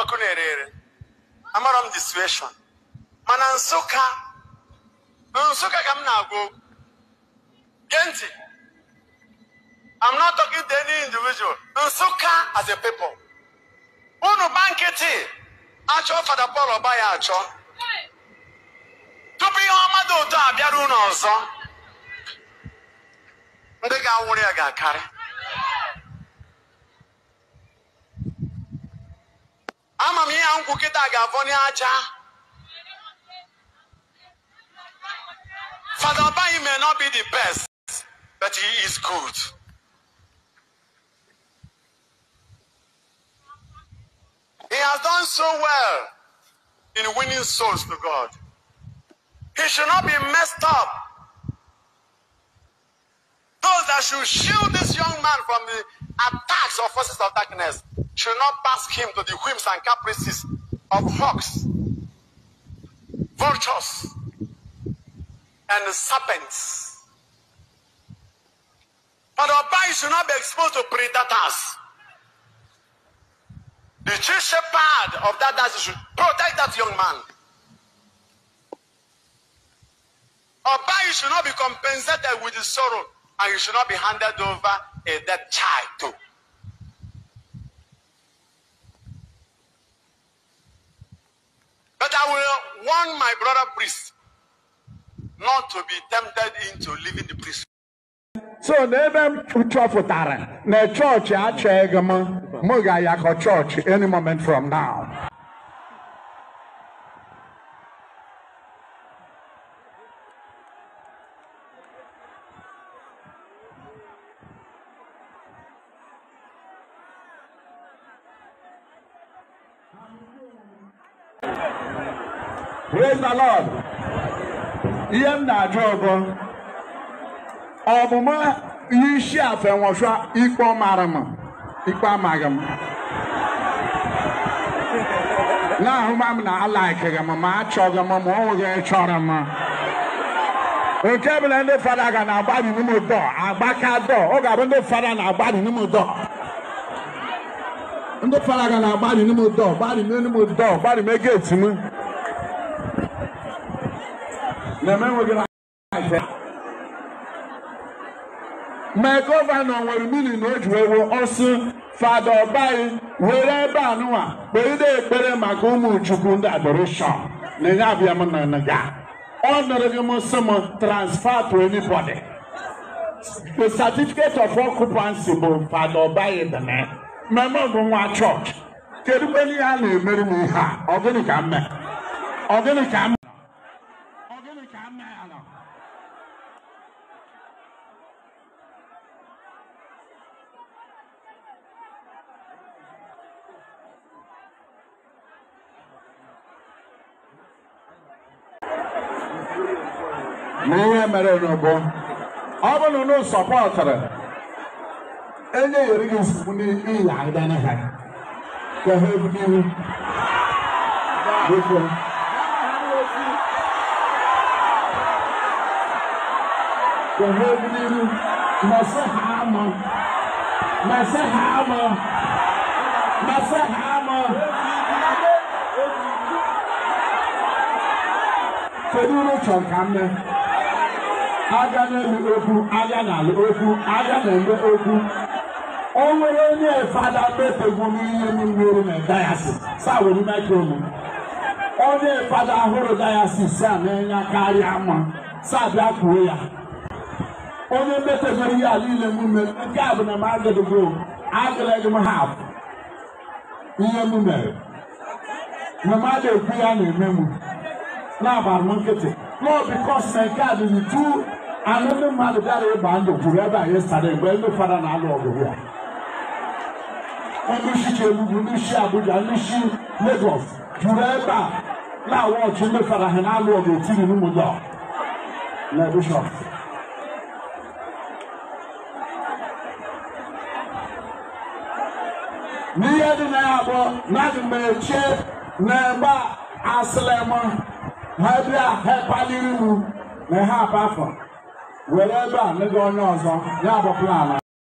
ọkụ na-ere ere amara m the mana nsụka nsụka ka m na-agwa okwu gee ntị I'm not talking to any individual nsụka as a people unu gba nkịtị achọ fada Paul ọba ya achọ tupu ihe ọma dị ụtọ abịara unu ọzọ ndị ga-anwụrụ ya ga-akarị ama m ihe nkwụ kịta ga-afọ n'aja Fada Abayi may not be the best but he is good. He has done so well in winning souls to God. He should not be messed up. Those that should shield this young man from the attacks of forces of darkness should not pass him to the whims and caprices of hawks, vultures, and serpents. But our bodies should not be exposed to predators. The chief shepherd of that dance should protect that young man. Our bodies should not be compensated with the sorrow, and you should not be handed over a dead child to. I will warn my brother priest not to be tempted into leaving the priest. so never n'ebe m chọpụtara na chọọchị achọghị m m ga-ayakọ church any moment from now Hallelujah. Praise the Lord. Ihe m na-ajụ ọbọ Ọmụmụ isi afọ enwehwa ikpe ọmara m ikpe amaghị m na-ahụma m na alaikịghị m ma achọghị m ma ọnwụghị chọrọ m nke bụla ndị fada ga na-agbabi n'ime ụdọ agbaka dọ ọ ga-abụ ndị fada na-agbabi n'ime ụdọ ndị fada ga na-agbabi n'ime ụdọ gbabi n'ime ụdọ gbabi megeti m na menweghị afọ ma gọvanọ nwere mili na o ji wee wuo ọsụ fada ọbaghị were ebe anụwa kperide ekpere maka ụmụ chukwu ndị adoreshọn na enye abịa m na nga ọ nọrọ gị m sị m transfer to anybody the certificate of occupancy bụ fada ọbaghị dana mmemme bụ nwa chọọchị kedu kwenye ya na-emeri m ihe a ọ gịnị ka m mee ọ gịnị ka m कोई na ihe mere n'ugbo ọ bụrụ na sọpọtụrụ enye yeri gị nsogbu n'ihi agịda ha ka ha وهبني مسح عمى مسح عمى مسح عمى keduru chọkamne aga n'elu okwu aga n'ala okwu aga n'eme okwu o nwere onye fada mepegwu n'ihe niwere na dayasis saa were mekromu onye fada hụrụ dayasis a na-enye karịa mma saa bịa kwuo ya onye mmetebere ihe a niile m nke a bụ na m agụdụgo m agụleghị m ha ihe m mere na mmadụ ekwu ya na-eme m na-agbara m nkịtị nọọ na nke a dịrị tu anụ ndị mmadụ bịara ịgba ndụ kwuru ebe anyị sara mgbe ndị fara na-alụ ọgụ ya ndị isi Chiebube ndị isi Abuja ndị isi Lagos juru ebe a na-awa ọchị ndị fara ha na-alụ ọgụ etiri n'ụmụdọ na bishọp miyɛ de na abɔ na de mɛkyɛ na ɛba asilɛmɔ ha bi a ha paliri mu na ha ba ba ne de ɔnyɛ ɔzɔ ne abɔ plan na.